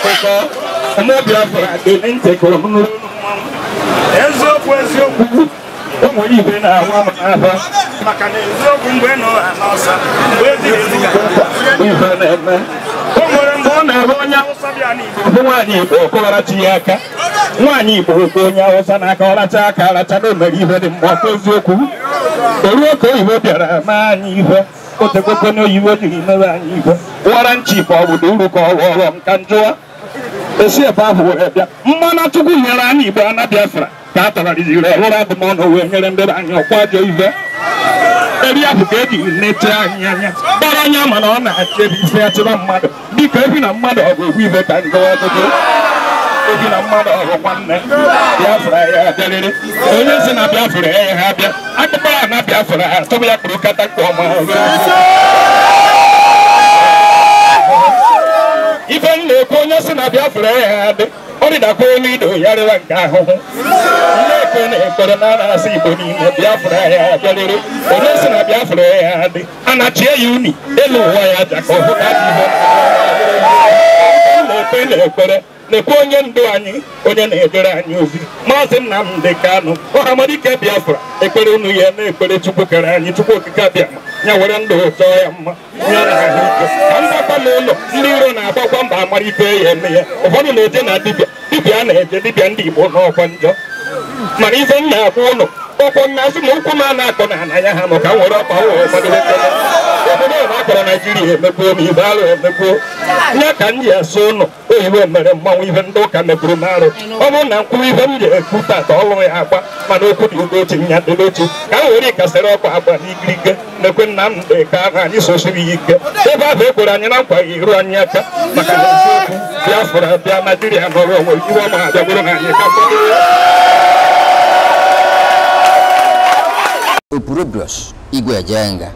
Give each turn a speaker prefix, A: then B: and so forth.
A: akụkọ ụmụ biafra dị ntịkụrụ m n'ụlọ eziokwu eziokwu ụmụ igwe na-awa m n'ahụ maka na eziokwu mgbe nọ n'ọsa mgbe dị ife na-eme o nwere mgbe ọ na-ere onye awụsa bịa n'igbo bụ nwaanyị igbo okụgharachi ya aka nwaanyị igbo okwu onye awụsa n'aka ọracha aka aracha na o mere ihe dị mgbe ọkụ eziokwu esi ebe ahụ were bịa mmanụ chukwu nyere igbo ana biafra ka a tọghariziri ọhụrụ abụmọnụ wee nyere ndị anyị eri e nete anya mana ọ na-achebe ife achịba ya mmadụ dịka ebi na mmadụ ọgụ egwu ibe ka njọ ọgụgụ ebi na mmadụ ọgụ nwanne biafra ya abịarịrị onye si na biafra ya ha ya ya na kata nke ọma onye si na Biafra ya adị ọ dịdakwa elu ido ya nke ahụhụ nnekwe na ekpere na na-asị Igbo niile Biafra ya bịarịrị onye si na Biafra ya adị anachie ya uni elu ụwa ya aja ka ọ hụ na na ekpere lekwa onye ndu anyị onye na-edere anyị ozi maazị Nnamdi Kanu ọhamadike Biafra ekpere unu ya na-ekpere Chukwu kere anyị Chukwu okike abịama ya were ndụ ụtọ ya mma ya na ahụ ike ka n'ụlọ ndị iro na-agbakwa mba amara ya eme ya ụfọdụ na-eje na dibịa dibịa na-eje dibịa ndị Igbo n'ọkwa njọ mana ife m na-akwụ ụlọ ọkwọ nna asị na ụkwụ a na akpọ na ana ya ha nọ ka m were ọkpa ụwa ụfọdụ na akpọrọ naijiria e ihe emekpuo ma igbe arụ emekpuo ya ka m ji asụ ụlọ oyibo mere mmanwụ ihe ndị ụka mepụrụ m arụ ọ bụrụ na nkwuwa ibe m ji ekwu tata ọlụrụ ya agba mana okwu dị ugochi nya dịla otu ka m were ikasịrị ọkụ agba n'ikirike mekwe nna m dị ka ahụ anyị sosiri ya ike ebe ahụ ekwere anyị na nkwa ya iru anyị aka maka na eziokwu bịafụrụ abịa naijiria nọrọ onwe iwe ọma abịa bụrụ ha anyị ka mkpọrọ igwe ya jenga